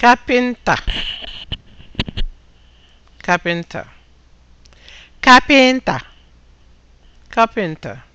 kapịnta kapịnta